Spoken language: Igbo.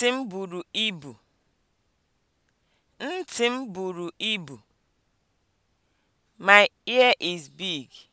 Ntị m buru ibu. Ntị m buru ibu. My ear is big.